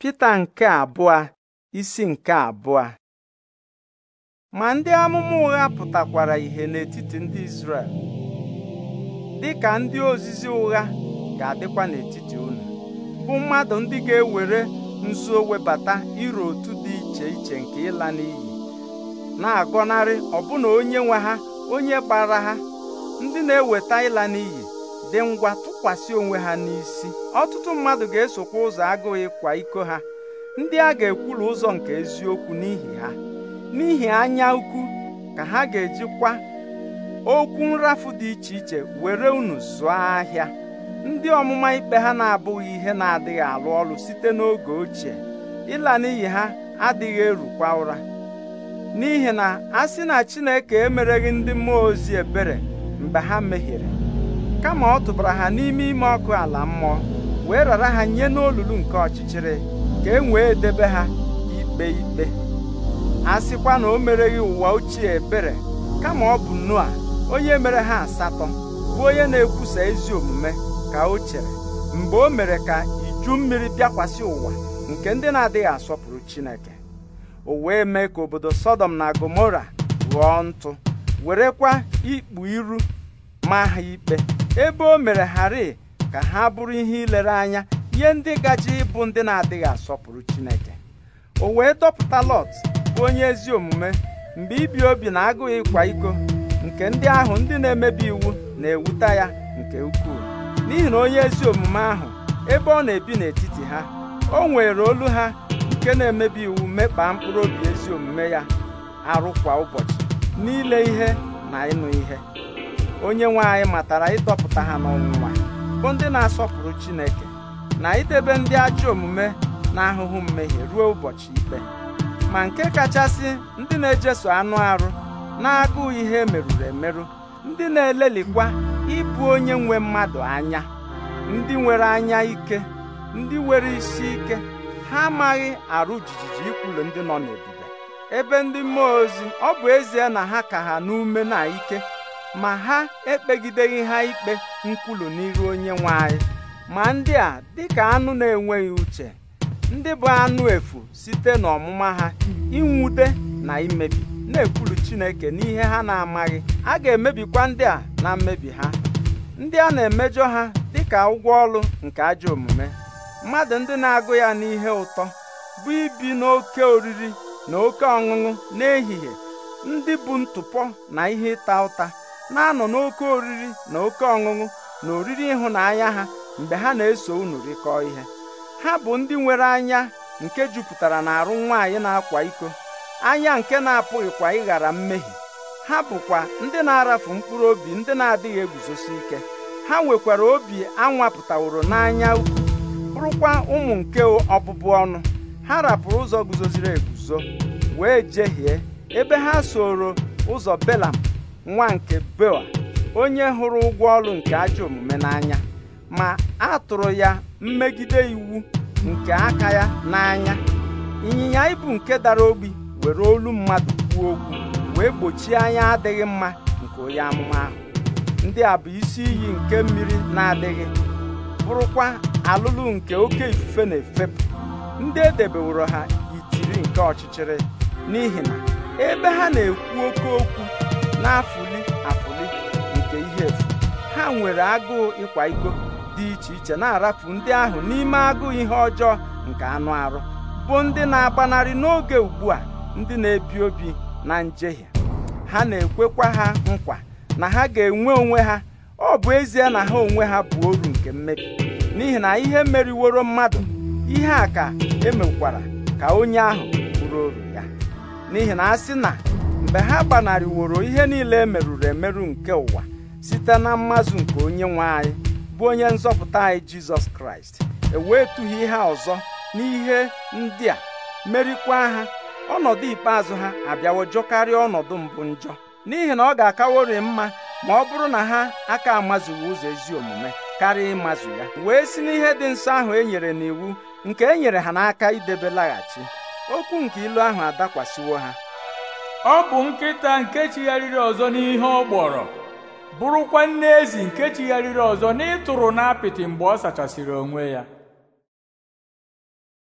Pita nke abụọ isi nke abụọ ma ndị amụma ụgha pụtakwara ihe n'etiti ndị Izrel dị ka ndị ozizi ụgha ga-adịkwa n'etiti unu bụ mmadụ ndị ga-ewere nzuo webata iru otu dị iche iche nke ịla n'iyi na-agọnarị ọbụna onye nwe ha onye gbara ha ndị na-eweta ịla n'iyi dị ngwa tụkwasị onwe ha n'isi ọtụtụ mmadụ ga-esokwa ụzọ agụụ ịkwa iko ha ndị a ga-ekwulu ụzọ nke eziokwu n'ihi ha n'ihi anya ukwu ka ha ga-ejikwa okwu nrafu dị iche iche were unu zụọ ahịa ndị ọmụma ikpe ha na-abụghị ihe na-adịghị alụ ọrụ site n'oge ochie ịla n'iyi ha adịghị erukwa ụra n'ihi na a sị na Chineke emereghị ndị mmụọ ozi ebere mgbe ha mehiere kama ọ tụbara ha n'ime ime ọkụ ala mmụọ wee rara ha nye n'olulu nke ọchịchịrị ka e wee debe ha ikpe ikpe a sịkwa na o mereghị ụwa ochie ebere kama ọ bụ Noa onye mere ha asatọ bụ onye na-ekwusa ezi omume ka o chere mgbe o mere ka iju mmiri bịakwasị ụwa nke ndị na-adịghị asọpụrụ Chineke o wee mee ka obodo Sọdọm na Gomora ghọọ ntụ werekwa ikpu iru ma ha ikpe ebe o mere hari ka ha bụrụ ihe ilere anya ihe ndị gaji ịbụ ndị na-adịghị asọpụrụ Chineke o wee dọpụta Lọt bụ onye ezi omume mgbe ibi obi na agụghị ịkwa iko nke ndị ahụ ndị na-emebi iwu na-ewuta ya nke ukwuu n'ihi na onye ezi omume ahụ ebe ọ na-ebi n'etiti ha o nwere olu ha nke na-emebi iwu mekpaa mkpụrụ obi ezi omume ya arụ kwa ụbọchị n'ile ihe na ịnụ ihe onye nwe anyị matara ịdọpụta ha n'ọnwụnwa bụ ndị na-asọpụrụ Chineke na idebe ndị ajọ omume na ahụhụ mmehie ruo ụbọchị ikpe ma nke kachasị ndị na-ejeso anụ arụ na-agụụ ihe merụrụ emerụ ndị na-elelikwa ịbụ onye nwe mmadụ anya ndị nwere anya ike ndị nwere isi ike ha amaghị arụ jijiji ikwulu ndị nọ n'ebube ebe ndị mmụọ ozi ọ bụ ezie na ha ka ha n'ume na ike ma ha ekpegideghị ha ikpe nkwulu n'iru onye nwe anyị ma ndị a dịka anụ na-enweghị uche ndị bụ anụ efu site n'ọmụma ha inwute na imebi na-ekwulu Chineke n'ihe ha na-amaghị a ga-emebikwa ndị a na mmebi ha ndị a na-emejọ ha dịka ụgwọ ọrụ nke ajọ omume mmadụ ndị na-agụ ya n'ihe ụtọ bụ ibi n'oke oriri na oke ọṅụṅụ n'ehihie ndị bụ ntụpọ na ihe ịta ụta na-anọ n'oke oriri na oke ọṅụṅụ na oriri ịhụnanya ha mgbe ha na-eso unu rịkọọ ihe ha bụ ndị nwere anya nke jupụtara na arụ nwaanyị na-akwa iko anya nke na-apụghịkwa ịghara mmehie ha bụkwa ndị na-arafu mkpụrụ obi ndị na-adịghị eguzosi ike ha nwekwara obi anwapụtaworo n'anya ukwu bụrụkwa ụmụ nke ọbụbụ ọnụ ha rapụrụ ụzọ guzoziri eguzo wee jehie ebe ha soro ụzọ belam nwa nke bewa onye hụrụ ụgwọ ọrụ nke ajọ omume n'anya ma a tụrụ ya mmegide iwu nke aka ya n'anya ịnyịnya ibu nke dara obi were olu mmadụ kwuo okwu wee gbochie anya adịghị mma nke onye amụma ahụ ndị a bụ isi iyi nke mmiri na-adịghị bụrụkwa alụlụ nke oke ifufe na-efepụ ndị edebeworo ha itiri nke ọchịchịrị n'ihi na ebe ha na-ekwu oke okwu na-afụli afụli nke ihe efu ha nwere agụụ ịkwa iko dị iche iche na-arafu ndị ahụ n'ime agụụ ihe ọjọọ nke anụ arụ bụ ndị na-agbanarị n'oge ugbu a ndị na-ebi obi na njehie ha na-ekwekwa ha nkwa na ha ga-enwe onwe ha ọ bụ ezie na ha onwe ha bụ oru nke mmebi n'ihi na ihe meriworo mmadụ ihe a ka emekwara ka onye ahụ bụrụ oru ya n'ihi na a sị na mgbe ha gbanarịworo ihe niile e merụrụ emerụ nke ụwa site na mmazụ nke onye nwe anyị bụ onye nzọpụta anyị jizọs kraịst ewetughị ihe ọzọ n'ihe ndị a merikwa ha ọnọdụ ikpeazụ ha abịawo jọkarịa ọnọdụ mbụ njọ n'ihi na ọ ga-akawori mma ma ọ bụrụ na ha aka amazughị ụzọ ezi omume karịa ịmazụ ya wee si n'ihe dị nsọ ahụ e nyere n'iwu nke e nyere ha n'aka idebe laghachi okwu nke ilu ahụ adakwasịwo ha ọ bụ nkịta nke chigharịrị ọzọ n'ihe ọ gbọrọ bụrụkwa nne ezi nke chigharịrị ọzọ n'ịtụrụ apịtị mgbe ọ sachasịrị onwe ya